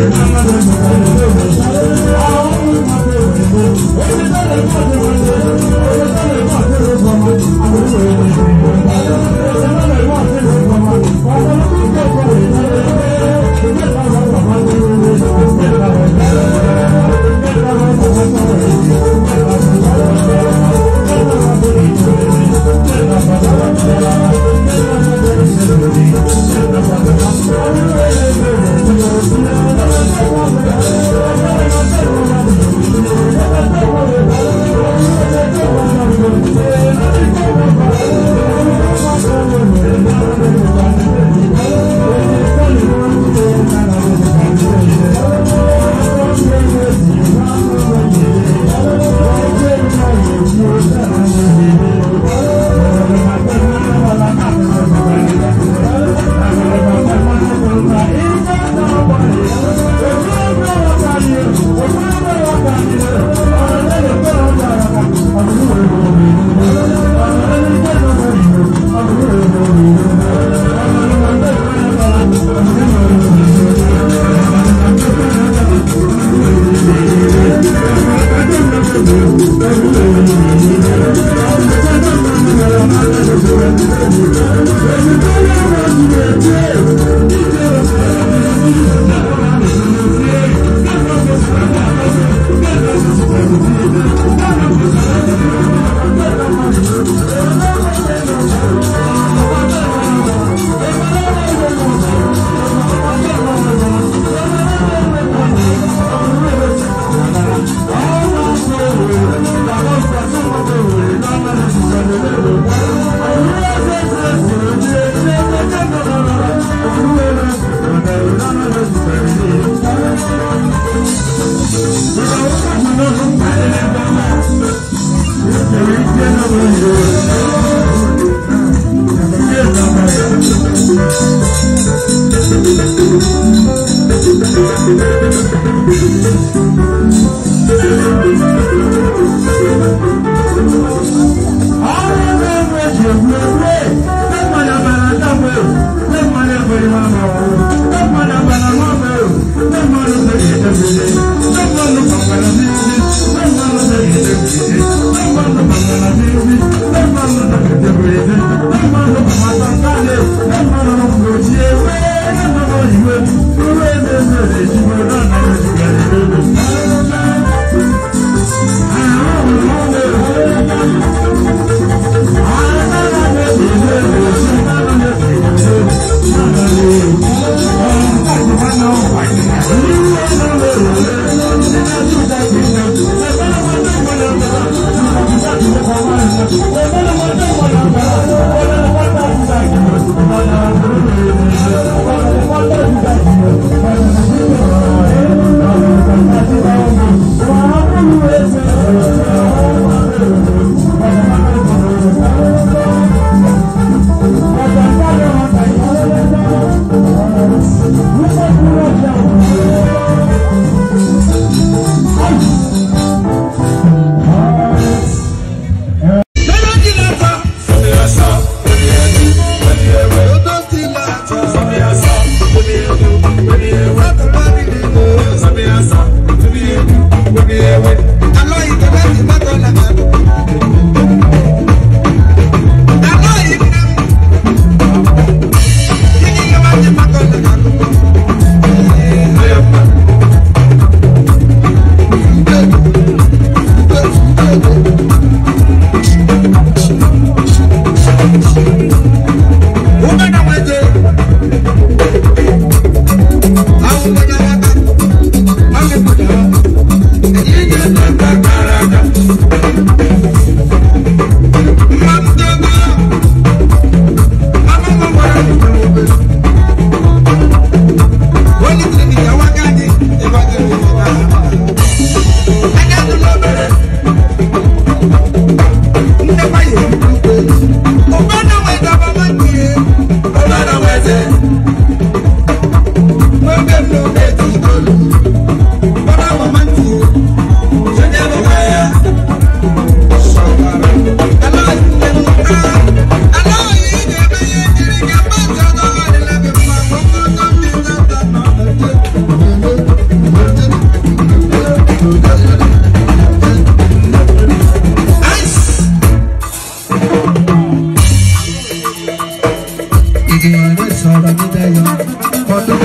I'm not going to Thank you.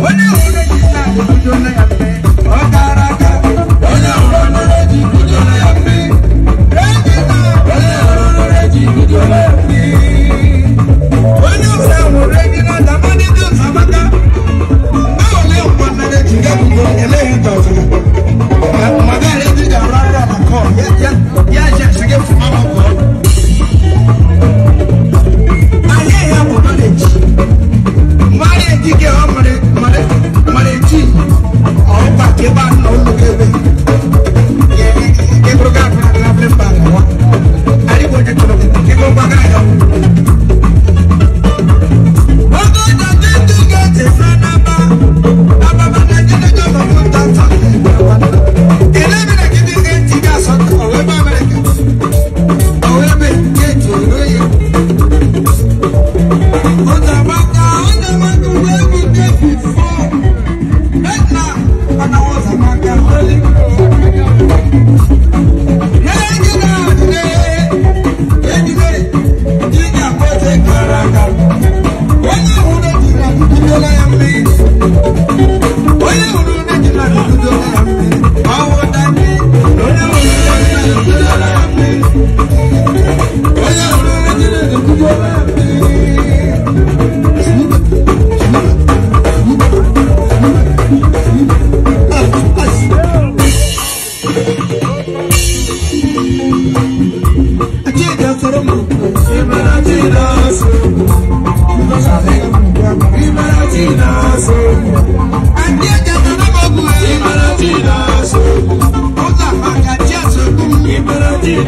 When you hold it, you don't